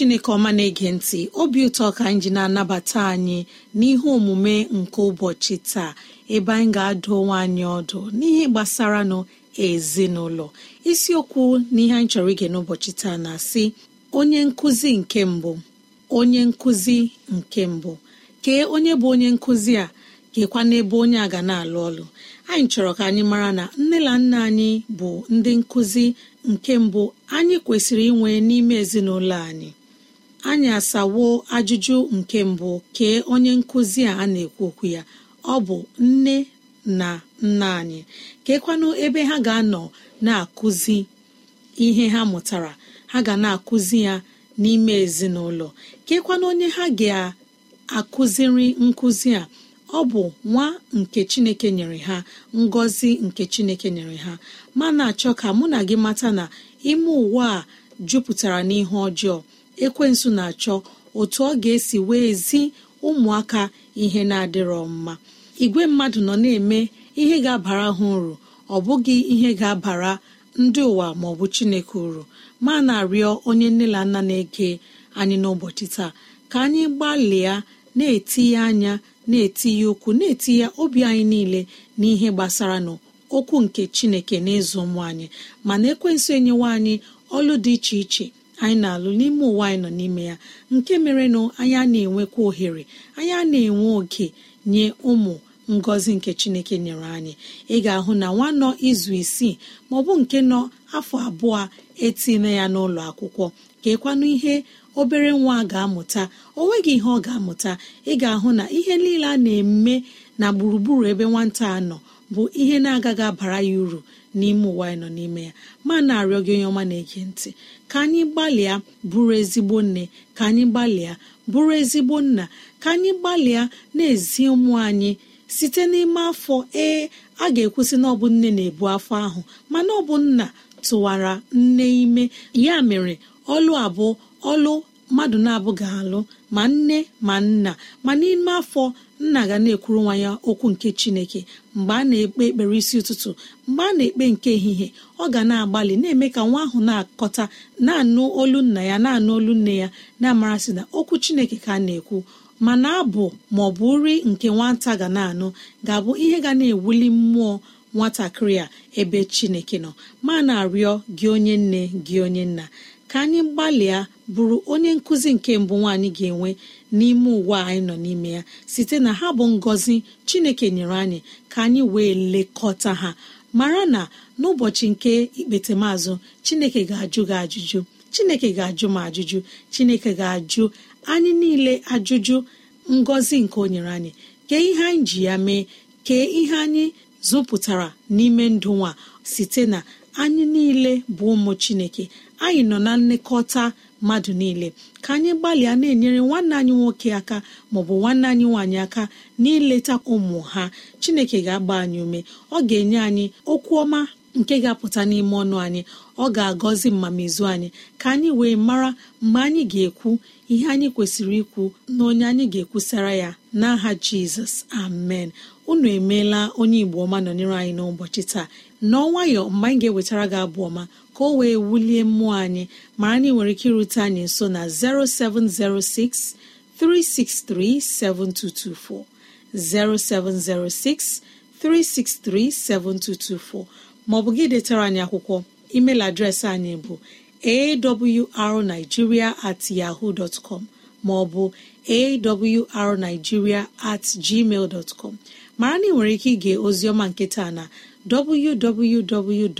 chineke ọma na-ege ntị obi ụtọ ka anyị ji na-anabata anyị n'ihe omume nke ụbọchị taa ebe anyị ga-adụ onwe anyị ọdụ n'ihe gbasara nụ ezinụlọ isiokwu n'ihe anyị chọrọ ige n'ụbọchị taa na-asị onye nkụzi nke mbụ onye nkụzi nke mbụ kee onye bụ onye nkụzi a kekwa n'ebe onye a ga na-alụ ọlụ anyị chọrọ ka anyị mara na nne na nna anyị bụ ndị nkụzi nke mbụ anyị kwesịrị inwe n'ime ezinụlọ anyị anyị asawo ajụjụ nke mbụ kee onye nkụzi a na-ekwu okwu ya ọ bụ nne na nna anyị keekwanụ ebe ha ga-anọ na-akụzi ihe ha mụtara ha ga na-akụzi ya n'ime ezinụlọ keekwanụ onye ha ga-akụziri nkụzi a ọ bụ nwa nke chineke nyere ha ngọzi nke chineke nyere ha mana achọ ka mụ na gị mata na ime ụwa a jupụtara n'ihe ọjọọ ekwensụ na-achọ otu ọ ga-esi wee zi ụmụaka ihe na-adịrọ mma igwe mmadụ nọ na-eme ihe ga-abara ha uru ọ bụghị ihe ga-abara ndị ụwa ma ọ bụ chineke uru ma na-arịọ onye nne na nna na-ege anyị n'ụbọchị taa ka anyị gbalịa na-etinye anya na-etinye ụkwụ na-etinye obi anyị niile n'ihe gbasara n'okwu nke chineke n'ịzụ ụmụ anyị mana ekwensu enyewa anyị ọlụ dị iche iche anyị na-alụ n'ime ụwa anyị nọ n'ime ya nke mere anyị a na-enwekwa ohere anyị a na-enwe oke nye ụmụ ngọzi nke chineke nyere anyị ị ga-ahụ na nwa nọ izu isii maọbụ nke nọ afọ abụọ etinye ya n'ụlọ akwụkwọ ka ekwanụ ihe obere nwa ga-amụta o nweghị ihe ọ ga-amụta ị ga-ahụ na ihe niile a na-eme na gburugburu ebe nwata a nọ bụ ihe na-agaghị abara ya uru n'ime ụwa anyị nọ n'ime ya ma na-arịọ gị onye ọma na-ege ntị ka anyị gbalịa bụrụ ezigbo nne ka anyị gbalịa bụrụ ezigbo nna ka anyị gbalịa na-ezi ụmụ anyị site n'ime afọ ee a ga-ekwusị na ọ bụ nne na-ebu afọ ahụ mana ọ bụ nna tụwara nne ime ya mere ọlụ abụọ ọlụ mmadụ na-abụ ga-alụ ma nne ma nna ma n'ime afọ nna ga na-ekwuru nwa ya okwu nke chineke mgbe a na-ekpe ekpere isi ụtụtụ mgbe a na-ekpe nke ehihie ọ ga na-agbalị na-eme ka nwa ahụ na-akọta na-anụ olu nna ya na-anụ olu nne ya na-amarasị na okwu chineke ka a na-ekwu mana abụ ma ọ bụ nri nke nwata ga na-anụ ga-abụ ihe ga na-ewuli mmụọ nwatakịrị a ebe chineke nọ ma na-arịọ gị onye nne gị onye nna ka anyị gbalịa bụrụ onye nkụzi nke mbụ nwaanyị ga-enwe n'ime ụwa anyị nọ n'ime ya site na ha bụ ngọzi chineke nyere anyị ka anyị wee lekọta ha mara na n'ụbọchị nke ikpetemazụ chineke ga-ajụ gị ajụjụ chineke ga-ajụ m ajụjụ chineke ga-ajụ anyị niile ajụjụ ngọzi nke o nyere anyị kee ihe anyị ji ya mee kee ihe anyị zụpụtara n'ime ndụ nwa site na anyị niile bụ ụmụ chineke anyị nọ na nlekọta mmadụ niile ka anyị gbalịa na-enyere nwanne anyị nwoke aka maọbụ nwanne anyị nwaanyị aka n'ileta ụmụ ha chineke ga-agba anyị ume ọ ga-enye anyị okwu ọma nke ga-apụta n'ime ọnụ anyị ọ ga-agọzi mmamizu anyị ka anyị wee mara mgbe anyị ga-ekwu ihe anyị kwesịrị ikwu na onye anyị ga-ekwusara ya n'aha jizọs amen unu emeela onye igbo ọma nọnyere anyị n'ụbọchị taa n'ọnwayọ mgbe anyị ga-ewetara gị abụ ọma ka o wee wulie mmụọ anyị mara na nwere ike irute anyị nso na 0706 363 7224 0706 363 7224 maọbụ gị detara anyị akwụkwọ email adreesị anyị bụ awrnigeria at yahoo dot com maọbụ awrnigeria at gmail dot com mara na ị nwere ike ige ozioma nketa na www.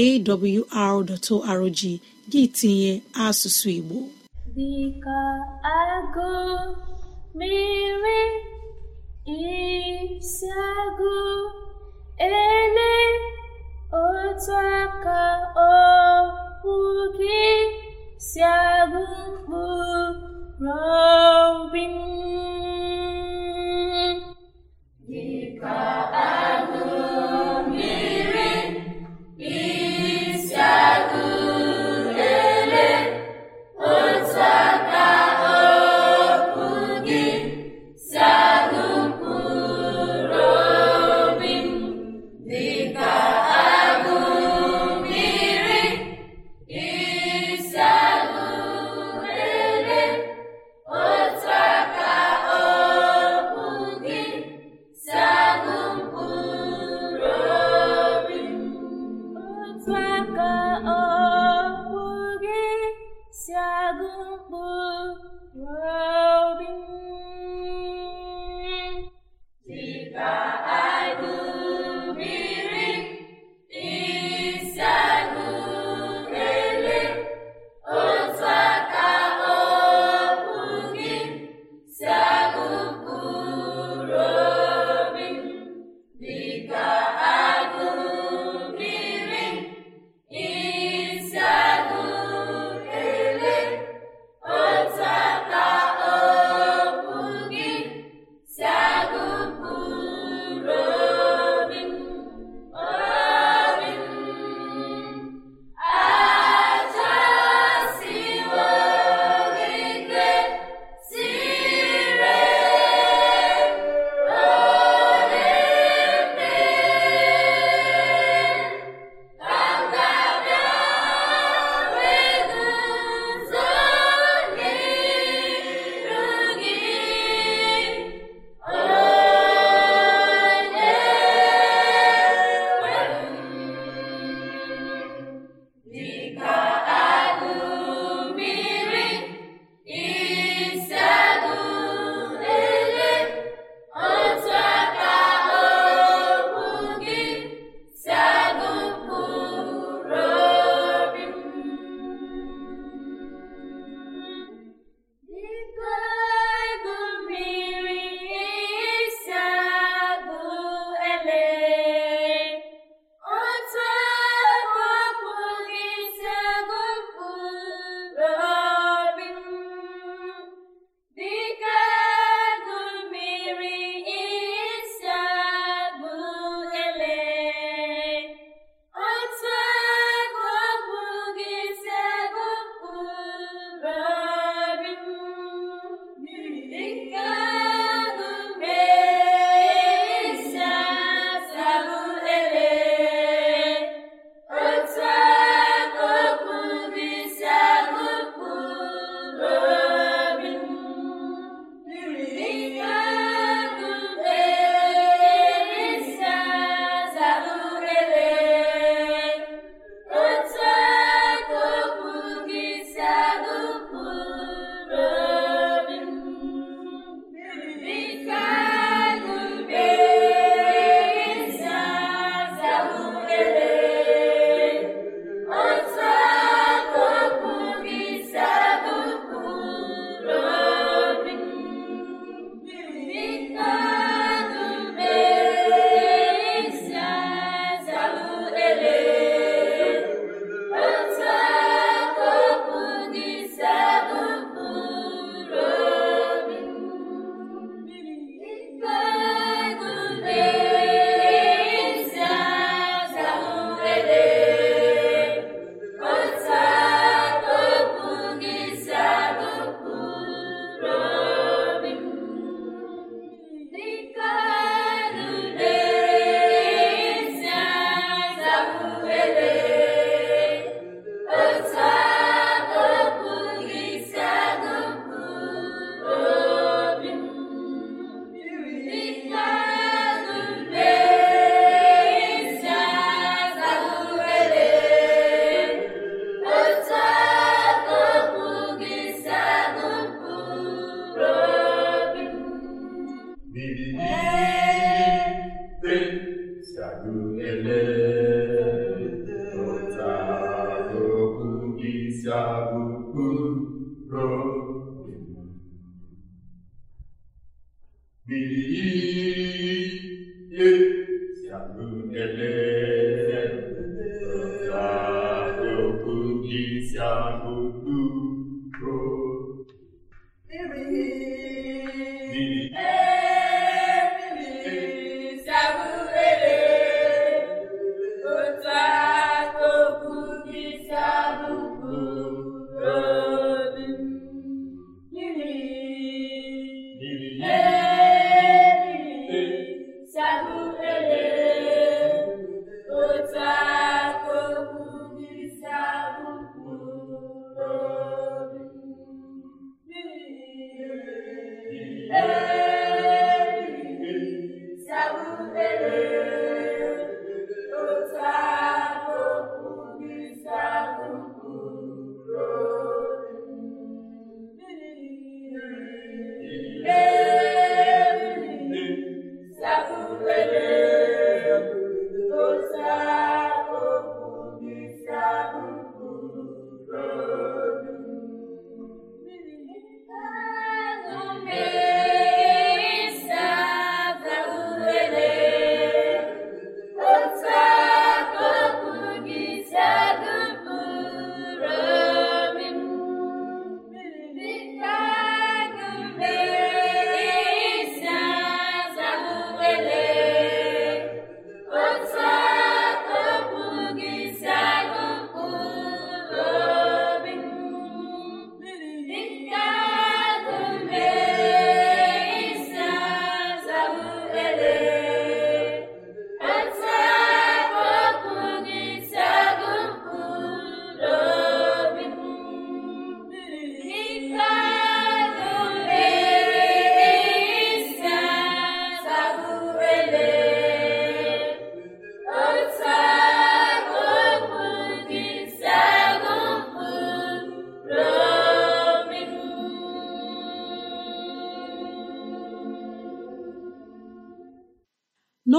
awr.org gị tinye asụsụ igbo dịka agụ mere isi agụ ele otu aka okwu gị si agụ mkpụrụ obi agụ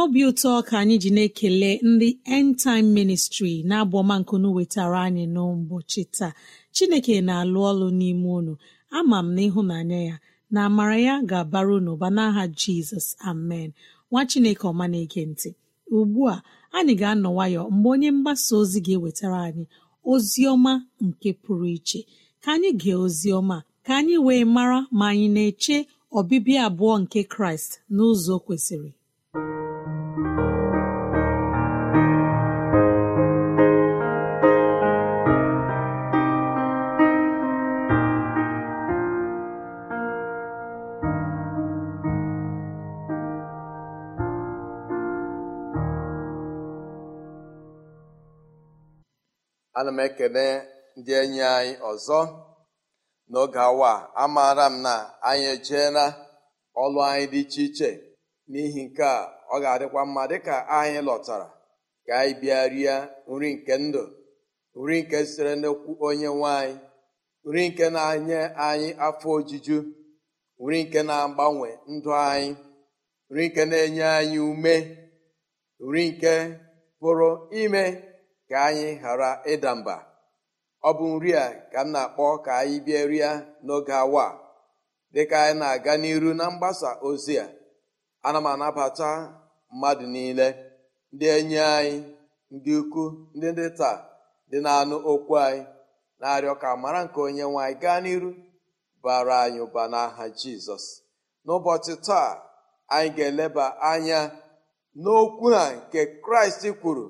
n'obi ụtọ ka anyị ji na-ekele ndị End Time Ministry na-abụ ọma nkunu wetara anyị n'ụbọchị taa Chineke na-alụ ọlụ n'ime unu ama m na ịhụnanya ya na amara ya ga-abara unu ụba n'aha Jizọs amen nwa Chineke ọma na-ege ntị ugbu a anyị ga-anọ nwayọ mgbe onye mgbasa ozi ga-ewetara anyị ozi ọma nke pụrụ iche ka anyị gee ozi ọma ka anyị wee mara ma anyị na-eche ọbịbịa abụọ nke Kraịst n'ụzọ kwesịrị ana m ekele ndị enyi anyị ọzọ n'oge awa amaara m na anyị ejeela ọlụ anyị dị iche iche n'ihi nke a ọ ga-adịkwa mma dịka anyị lọtara ka anyị bịa rie nri nke ndụ nri nke sitere n'okwu onye nwanyị nri nke na-enye anyị afọ ojuju nri nke na-agbanwe ndụ anyị nri nke na-enye anyị ume nri nke pụrụ ime ka anyị ghara ịda mba ọ bụ nri a ka m na-akpọ ka anyị bịa rịa n'oge awa dịka anyị na-aga n'iru na mgbasa ozi a ana m anabata mmadụ niile ndị enyi anyị ndị ukwu ndị ndị taa dị na-anụ okwu anyị na-arịọ ka mara nke onye nwanyị gaa n'iru bara anyị ụba n'aha jizọs n'ụbọchị taa anyị ga-eleba anya n'okwu a nke kraịst kwuru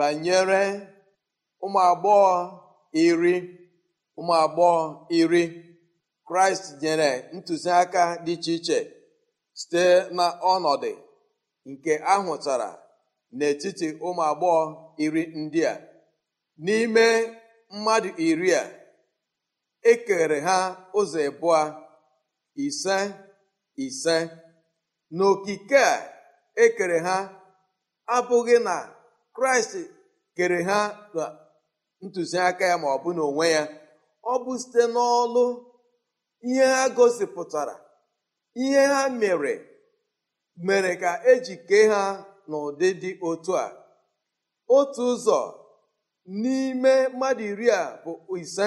banyere ụmụ agbọghọ iri ụmụ agbọghọ iri kraịst nyere ntụziaka dị iche iche site na ọnọdụ nke ahụtara n'etiti ụmụ agbọghọ iri ndị a n'ime mmadụ iri a ekere ha ụzọ ịbụọ ise ise n'okike a ekere ha abụghị na kraịst kere ha na ntụziaka ya ma ọ bụ n'onwe ya ọ bụ site n'ọlụ ihe ha gosipụtara ihe ha mere mere ka eji kee ha n'ụdị dị otu a otu ụzọ n'ime mmadụ iri a bụ ise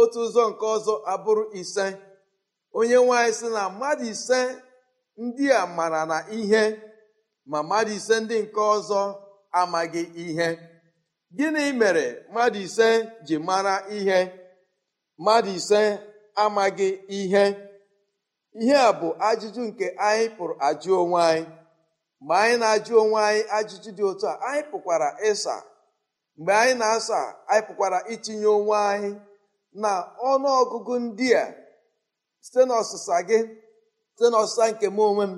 otu ụzọ nke ọzọ abụrụ ise onye nwanyị sị na mmadụ ise ndị a mara na ihe ma mmadụ ise ndị nke ọzọ amaghị ihe gịnị mere mmadụ ise ji mara ihe mmadụ ise amaghị ihe ihe a bụ ajụjụ nke anyị pụrụ ajụ onwe anyị mgbe anyị na-ajụ onwe anyị ajụjụ dị otu a anyị pụkwara ịsa mgbe anyị na-asa anyị pụkwara itinye onwe anyị na ọnụọgụgụ ndị a site n'ọsịsa gị site n'ọsịsa nke m onwe m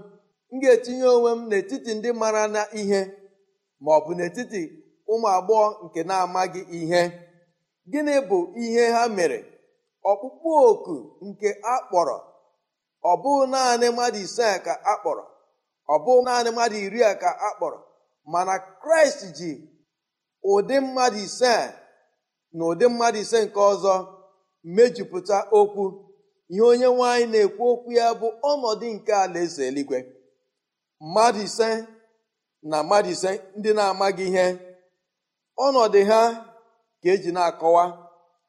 m ga-etinye onwe m n'etiti ndị mara na ihe ma ọ bụ n'etiti ụmụ agbọghọ nke na-amaghị ihe gịnị bụ ihe ha mere ọkpụkpụ oku nke akpọrọ ọ bụ naanị mmadụ ise ka akpọrọ ọ bụ naanị mmadụ iri a ka akpọrọ mana kraịst ji ụdị mmadụ ise na ụdị mmadụ ise nke ọzọ mejupụta okwu ihe onye nwaanyị na-ekwu okwu ya bụ ọnọdụ nke alaeze eluigwe mmadụ ise na mmadụ ndị na-amaghị ihe ọnọdụ ha ka eji na-akọwa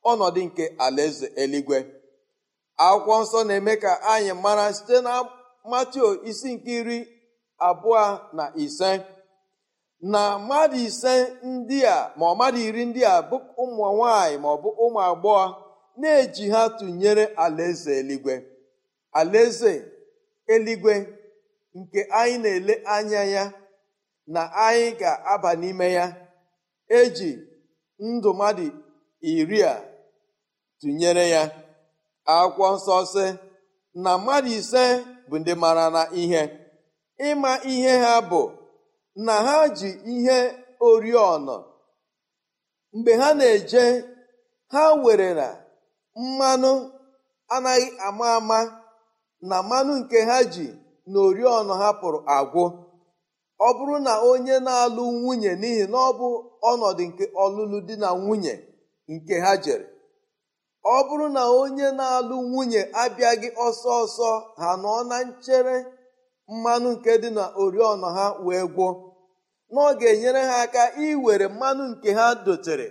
ọnọdụ nke alaeze eluigwe akwụkwọ nsọ na-eme ka anyị mara site na matio isi nke iri abụọ na ise na mmadụ ise ndị a ma ọ mmadụ iri ndị a bụ ụmụ nwanyị ma ọ bụ ụmụ agbọghọ na-eji ha tụnyere alaeze eluigwe alaeze eluigwe nke anyị na-ele anya ya na anyị ga-aba n'ime ya eji ndụ mmadụ iri a tụnyere ya akwụkwọ nsọ na mmadụ ise bụ ndị mara na ihe ịma ihe ha bụ na ha ji ihe oriọna mgbe ha na-eje ha were na mmanụ anaghị ama ama na mmanụ nke ha ji na oriọna ha pụrụ agwụ ọ bụrụ na onye na-alụ nwunye n'ihi na ọ bụ ọnọdụ nke ọlụlụ di na nwunye nke ha jere ọ bụrụ na onye na-alụ nwunye abịaghị ọsọ ọsọ ha nọ na nchere mmanụ nke dị na oriọna ha wee gwọ na ọ ga-enyere ha aka iwere mmanụ nke ha dotere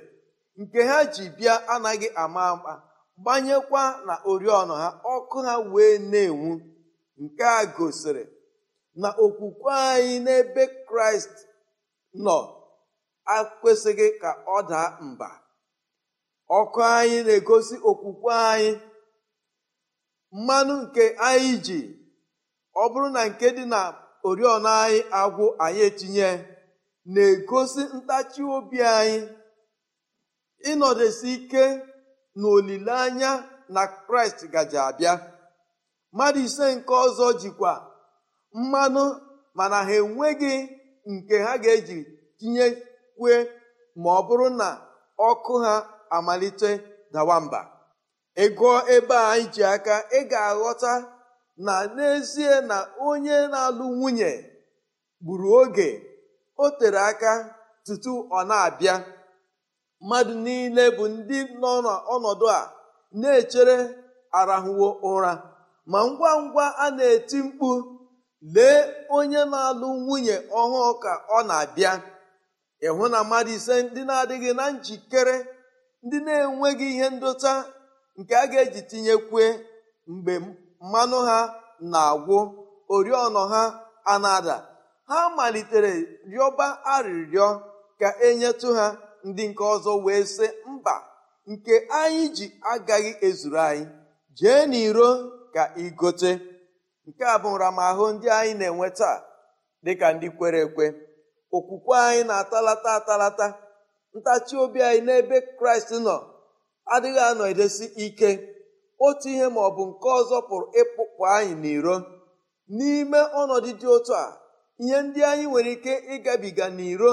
nke ha ji bịa anaghị ama ama gbanyekwa na oriọna ha ọkụ ha wee na-enwu nke a gosiri na okwukwe anyị n'ebe kraịst nọ akwesịghị ka ọ daa mba ọkụ anyị na-egosi okwukwe anyị mmanụ nke anyị ji ọ bụrụ na nke dị na oriọna anyị agwụ anyị etinye na-egosi ntachi obi anyị ịnọdụsi ike na na kraịst gaji abịa mmadụ ise nke ọzọ jikwa mmanụ mana ha enweghị nke ha ga-eji kwe ma ọ bụrụ na ọkụ ha amalite dawa mba Ịgụọ ebe a anyị ji aka ị ga-aghọta na n'ezie na onye na-alụ nwunye gburu oge o tere aka tutu ọ na-abịa mmadụ niile bụ ndị nọ n'ọnọdụ a na-echere arahụwo ụra ma ngwa ngwa a na-eti mkpu lee onye na-alụ nwunye ọhụụ ka ọ na-abịa ịhụ na mmadụ ise ndị na-adịghị na njikere ndị na-enweghị ihe ndota nke a ga-eji tinyekwe mgbe mmanụ ha na-agwụ oriọna ha anada ha malitere rịọba arịrịọ ka enyetụ ha ndị nke ọzọ wee sị mba nke anyị ji agaghị ezuru anyị jee n'iro ka igote nke a bụ nramahụ ndị anyị na-enwe taa dịka ndị kwere ekwe okwukwe anyị na-atalata atalata ntachi obi anyị n'ebe kraịst nọ adịghị anọ edesi ike otu ihe ma ọ bụ nke ọzọ pụrụ ịpụpụ anyị n'iro n'ime ọnọdụ dị otu a ihe ndị anyị nwere ike ịgabiga n'iro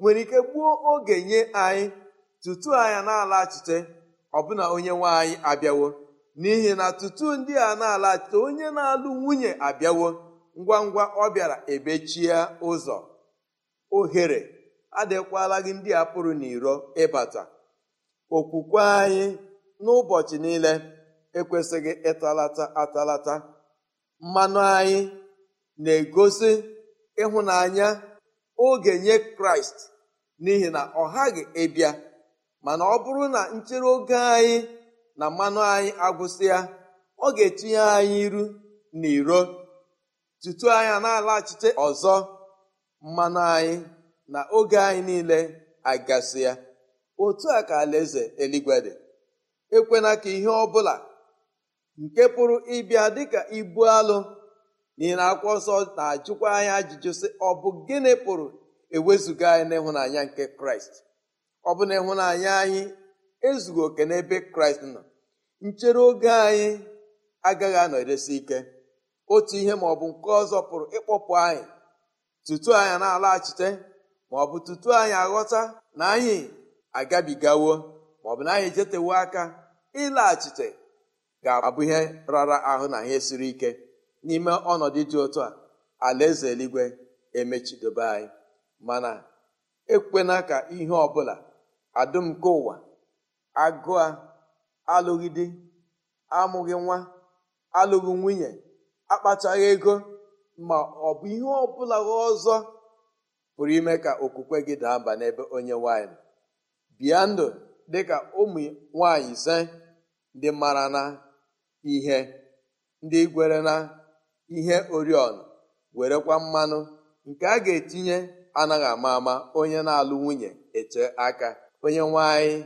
nwere ike gbuo oge nye anyị tutu anya na-alaghachite ọbụna onye nwe anyị abịawo n'ihi na tutu ndị a na-alachite onye na-alụ nwunye abịawo ngwa ngwa ọ bịara ebechie ụzọ ohere adịkwala gị ndị a pụrụ n'iro ịbata okwukwe anyị n'ụbọchị niile ekwesịghị ịtalata atalata mmanụ anyị na-egosi ịhụnanya oge nye kraịst n'ihi na ọ ghaghị ịbịa mana ọ bụrụ na nchere oge anyị na mmanụ anyị agwụsịa ọ ga-etinye anyị iru na iro tutu anya na-alaghachite ọzọ mmanụ anyị na oge anyị niile agasị ya otu a ka alaeze eluigwe dị ekwena ka ihe ọ bụla nke pụrụ ịbịa dịka ibu alụ n'ihi na akwụkwọ nsọ na-ajụkwa anyị ajụjụ sị ọ bụ gịnị pụrụ ewezuga anyị n'ịhụnanya nke kraịst ọ bụ na ịhụnanya anyị ezughị oke n'ebe kraịst nọ nchere oge anyị agaghị anọ eresi ike otu ihe ma ọ bụ nke ọzọ pụrụ ịkpọpụ anyị tutu anyị na-alaghachite ma ọ bụ tutu anyị aghọta na anyị agabigawo ma ọ bụ na anyị jetewo aka ịlaghachite ga-abụ ihe rara ahụ na ihe siri ike n'ime ọnọdụ dị otu a alaeze eluigwe emechidobe anyị mana ekwena ka ihe ọbụla adụm nke ụwa agụa alụghị di amụghị nwa alụghị nwunye akpachaghị ego ma ọ bụ ihe ọbụla ọzọ pụrụ ime ka okwukwe gị daa mba n'ebe onye nwanyị bịa ndụ dịka ụmụ nwanyị ise ndị mara na ihe ndị gwere na ihe oriọna werekwa mmanụ nke a ga-etinye anaghị ama ama onye na-alụ nwunye eche aka onye nwanyị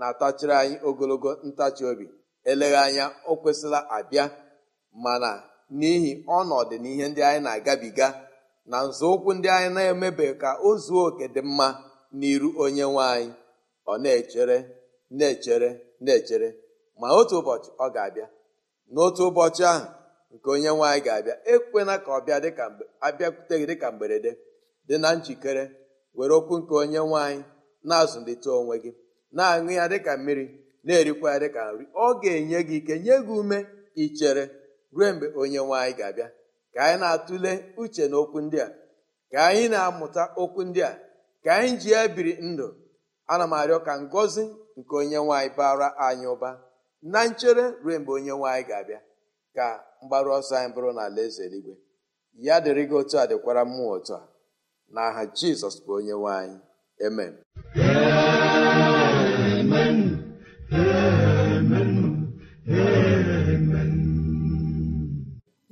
na-atachiri anyị ogologo ntachi obi eleghị anya o kwesịla abịa mana n'ihi ọnọdụ na ihe ndị anyị na-agabiga na nzọụkwụ ndị anyị na-emebe ka o zuo oke dị mma n'iru onye nwe anyị ọ na-echere na-echere na-echere ma otu ụbọchị ọ ga-abịa n'otu ụbọchị ahụ nke onye nwe anyị ga-abịa ekwena ka ọ bịa dịka abịakwute gị dịka mberede dị na njikere were okwu nke onye nwe anyị na-azụlite onwe gị na-aṅụ ya dịka mmiri na-erikwa ya dịka nri ọ ga-enye gị ike nye gị ume ichere ruo mgbe onye nwe anyị ga-abịa ka anyị na-atụle uche na okwu ndị a ka anyị na-amụta okwu ndị a ka anyị ji ya biri ndụ ana m arịọ ka ngọzi nke onye nwaanyị bara anyị ụba na nchere ruo mgbe onye nwaanyị ga-abịa ka mgbaru ọsọ anyị bụrụ na ala eze eluigwe ya dịrị gị otu a dịkwara mmụọ otu a na aha jizọs bụ onye nwaanyị amen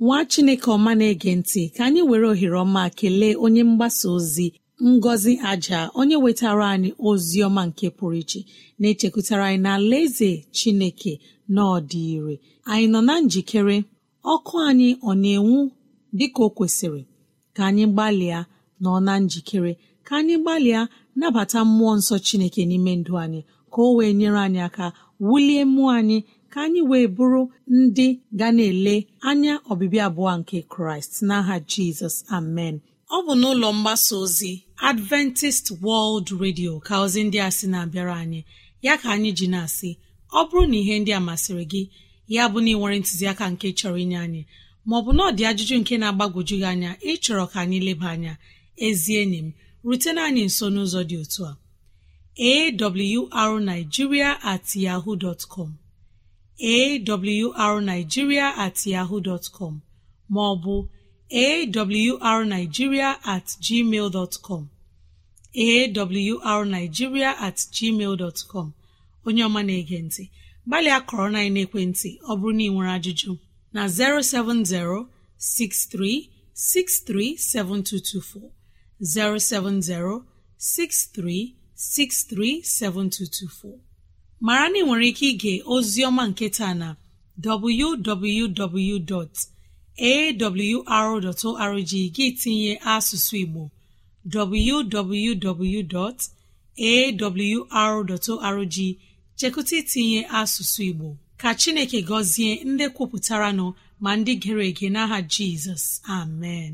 nwa chineke ọma na-ege ntị ka anyị were ohere ọma kelee onye mgbasa ozi ngọzi aja onye wetara anyị ozi ọma nke pụrụ iche na-echekwutara anyị na eze chineke na ọdị ire anyị nọ na njikere ọkụ anyị ọ na-enwu dịka o kwesịrị ka anyị gbalịa nọ na njikere ka anyị gbalịa nabata mmụọ nsọ chineke n'ime ndụ anyị ka o wee nyere anyị aka wulie mmụọ anyị ka anyị wee bụrụ ndị ga na-ele anya ọbịbịa abụọ nke kraịst n'aha jizọs amen ọ bụ n'ụlọ mgbasa ozi adventist world radio ka ozi ndị a sị na-abịara anyị ya ka anyị ji na-asị ọ bụrụ na ihe ndị a masịrị gị ya bụ na ịnwere ntụziaka nke chọrọ inye anyị maọbụ na ọ dị ajụjụ nke na-agbagwoju gị anya ịchọrọ ka anyị leba anya ezi enyi m rutena anyị nso n'ụzọ dị otu a awrnigeria at yahoo dot com arigiria at yaho dtcom maọbụ arigiria at gmail dọtcom arigiria at gmail dọtcom onye ọma na-ege ntị gbalịa kọrọ na ekwentị ọ bụrụ na ị nwere ajụjụ na 070 6363724 070 63637224 mara na ị nwere ike ige oziọma nketa na www.awr.org gị tinye asụsụ Igbo www.awr.org chekụta itinye asụsụ Igbo ka Chineke gọzie ndị kwupụtara nọ ma ndị gere ege n'aha Jizọs amen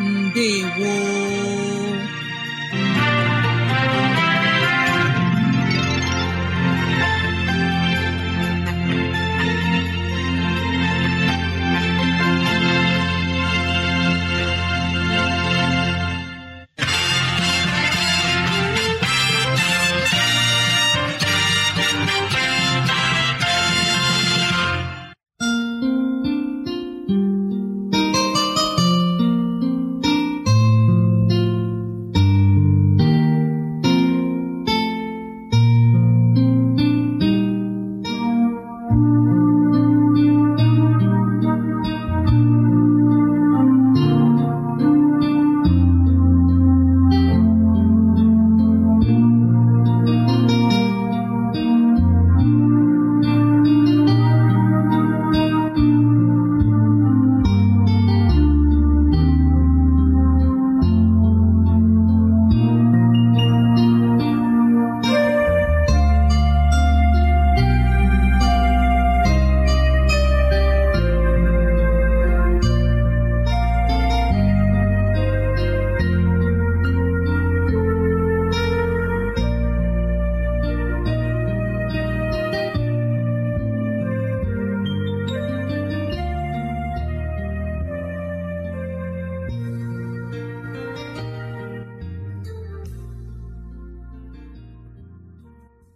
Ndewo